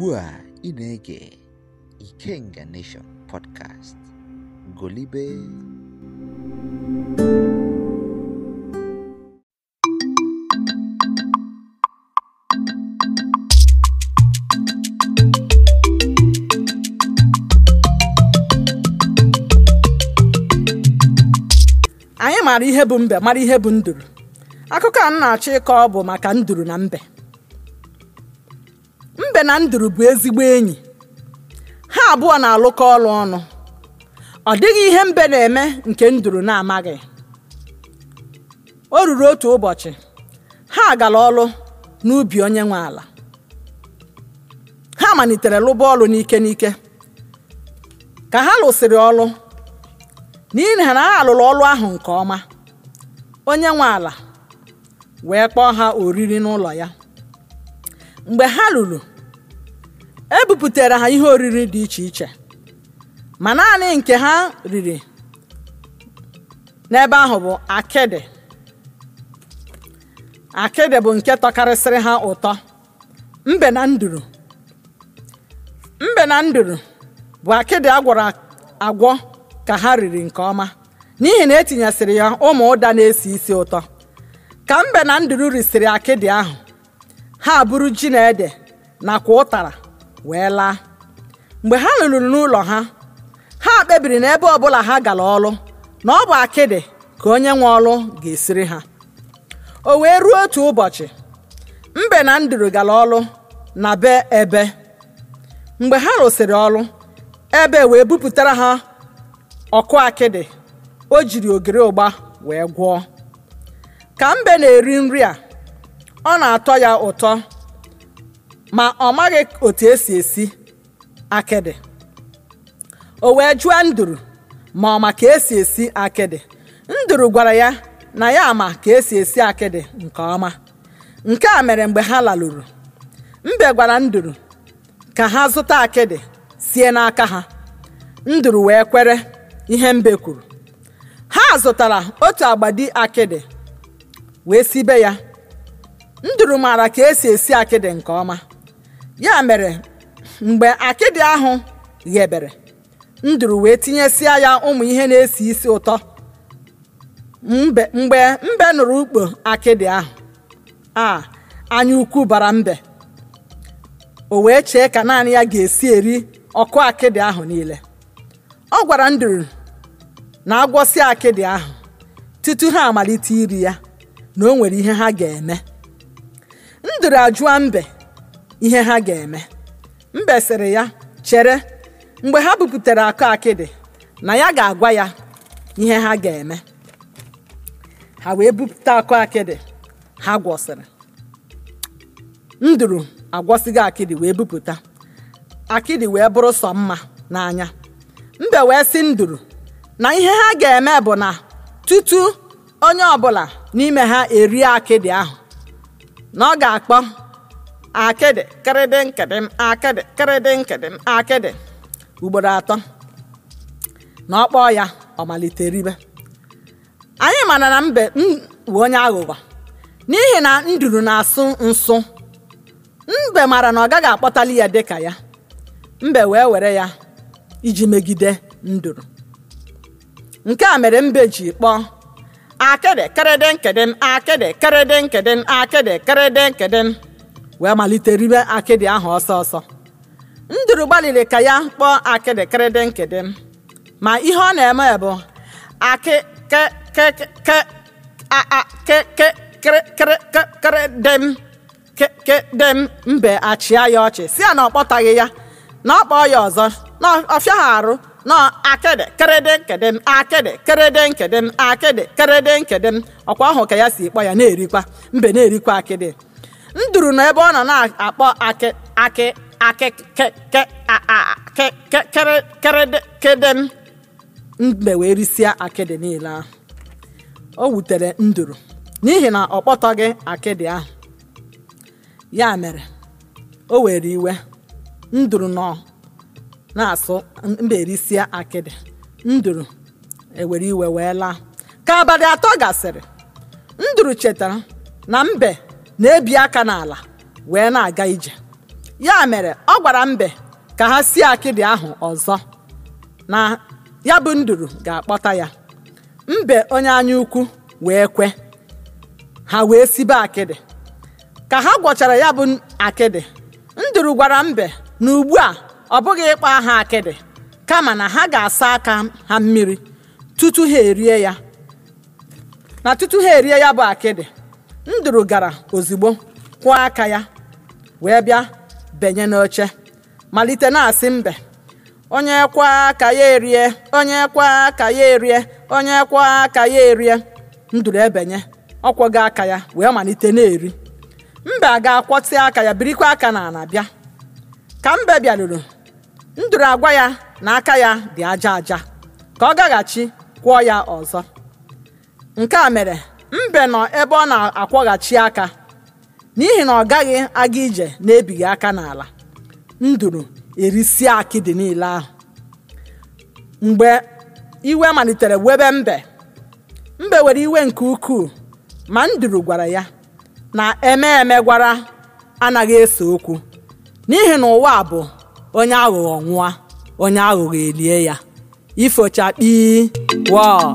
ugbu a ị na-ege Ikenga Nation podcast golibe anyị mara ihe bụ mbe mara ihe bụ nduru akụkọ a m na-achọ ịkọ ọ bụ maka nduru na mbe ebe na nduru bụ ezigbo enyi ha abụọ na-alụkọ ọlụ ọnụ ọ dịghị ihe mbe na-eme nke nduru na-amaghị o ruru otu ụbọchị ha gara ọrụ n'ubi onye nwe ala ha malitere lụba ọrụ n'ike n'ike ka ha lụsịrị ọlụ n'ihi na ha alụrụ ọrụ ahụ nke ọma onye nwe ala wee kpọọ ha oriri n'ụlọ ya mgbe ha lụrụ e ebuputere ha ihe oriri dị iche iche ma naanị nke ha riri n'ebe ahụ bụ akịdị akịdị bụ nke tọkarịsịrị ha ụtọ mbe na nduru mbe na nduru bụ akịdị agwọrọ agwọ ka ha riri nke ọma n'ihi na etinyesịrị ya ụmụ ụda na-esi isi ụtọ ka mbe na nduru risịrị akịdị ahụ ha buru ji na ede nakwa ụtara wee laa mgbe ha lụrụ n'ụlọ ha ha kpebiri na ebe ọbụla ha gara ọlụ na ọ bụ akịdị ka onye nwe ọrụ ga-esiri ha o wee ruo otu ụbọchị mbe na nduru gara ọlụ na be ebe mgbe ha rụsịrị ọlụ ebe wee bupụtara ha ọkụ akịdị o jiri ogiri ụgba wee gwọọ ka mbe na-eri nri a ọ na-atọ ya ụtọ ma ọ maghị otu esi esi akịdị o wee jụọ nduru ma ọ ma ka esi esi akịdị nduru gwara ya na ya ama ka esi esi akịdị nke ọma nke a mere mgbe ha laruru, mbe gwara nduru ka ha zụta akịdị sie n'aka ha nduru wee kwere ihe mbe kwuru ha zụtara otu agbadi akịdị wee sibe ya nduru maara ka esi esi akịdị nke ọma ya mere mgbe akịdị ahụ ghebere nduru wee tinyesia ya ụmụ ihe na-esi isi ụtọ mgbe mbe nụrụ ukpo akịdị ahụ a anya ukwu bara mbe o wee chee ka naanị ya ga-esi eri ọkụ akịdị ahụ niile ọ gwara nduru na agwọsị akịdị ahụ tutu ha amalite iri ya na o nwere ihe ha ga-eme nduru ajụọ mbe ihe ha ga-eme mbe ya chere mgbe ha buputere akụ akịdị na ya ga-agwa ya ihe ha ga-eme ha wee bupụta akụ akịdị ha gwọsịrị nduru agwọsịghị akịdị wee bupụta akịdị wee bụrụ sọ mma n'anya mbe wee si nduru na ihe ha ga-eme bụ na tutu onye ọbụla n'ime ha erie akịdị ahụ na ọ ga-akpọ akịdị kịrịdị nkịdị akịdị kịrịdị nkịdị akịdị ugboro atọ na ọ kpọọ ya ọ malite ribe anyị mana na mbe bụ onye aghụghọ n'ihi na nduru na-asụ nsụ mbe mara na ọ gaghị akpọtali ya dịka ya mbe wee were ya iji megide nduru nke a mere mbe ji kpọọ akịdị kịrịdị nkịdị akịdị kịrịdị nkịdị akịdị kịrịdị nkịdị wee malite ribe akịdị ahụ ọsọ ọsọ nduru gbalịrị ka ya kpọọ akịdị kịrịdị nkịdị m ma ihe ọ na-eme bụ akịkịkịkịkịkịkịkịdị m kịdị m mbe achịa ya ọchị si ya na ọ kpọtaghị ya na ọ kpọọ ya ọzọ na ọfịaghị arụ na akịdị kịrịdị nkịdị m akịdị kịrịdị nkịdị m akịdị m ọkwa ahụ ka ya si kpọ ya na-erikwa mbe na-erikwa akịdị nduru nọ ebe ọ nọ na-akpọ akị akị akịkịkịkịkịkịkịkịdị mbe wee risịa akịdị niile ahụ o wutere nduru n'ihi na ọ kpọtọghị akịdị ahụ ya mere o were iwe nduru nọ na-asụ mbe risịa akịdị nduru ewere iwe wee laa ka abalị atọ gasịrị nduru chetara na mbe na-ebi aka n'ala wee na-aga ije ya mere ọ gwara mbe ka ha sie akịdị ahụ ọzọ na ya bụ nduru ga-akpọta ya mbe onye anya ukwu wee kwe ha wee sibe akịdị ka ha gwọchara ya bụ akịdị nduru gwara mbe na ugbu a ọ bụghị ịkpọ aha akịdị kama na ha ga-asa aka ha mmiri tutu ha erie ya na tutu ha erie ya bụ akịdị nduru gara ozugbo kwụọ aka ya wee bịa benye n'oche malite na-asị mbe onye kwa aka ya erie onye kwa aka ya erie onye kwa aka ya erie nduru ebenye ọkwọgo aka ya wee malite na-eri mbe a ga-akwọtị aka ya birikwa aka na ana bịa ka mbe bịaruru nduru agwa ya na aka ya dị aja aja ka ọ gaghachi kwụọ ya ọzọ nke a mere mbe nọ ebe ọ na-akwọghachi aka n'ihi na ọ gaghị aga ije na-ebighị aka n'ala nduru erisie akịdị niile ahụ mgbe iwe malitere webe mbe mbe were iwe nke ukwuu ma nduru gwara ya na eme gwara anaghị ese okwu n'ihi na ụwa bụ onye aghụghọ nwụa onye aghụghọ elie ya ifocha kpii wọọ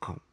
com.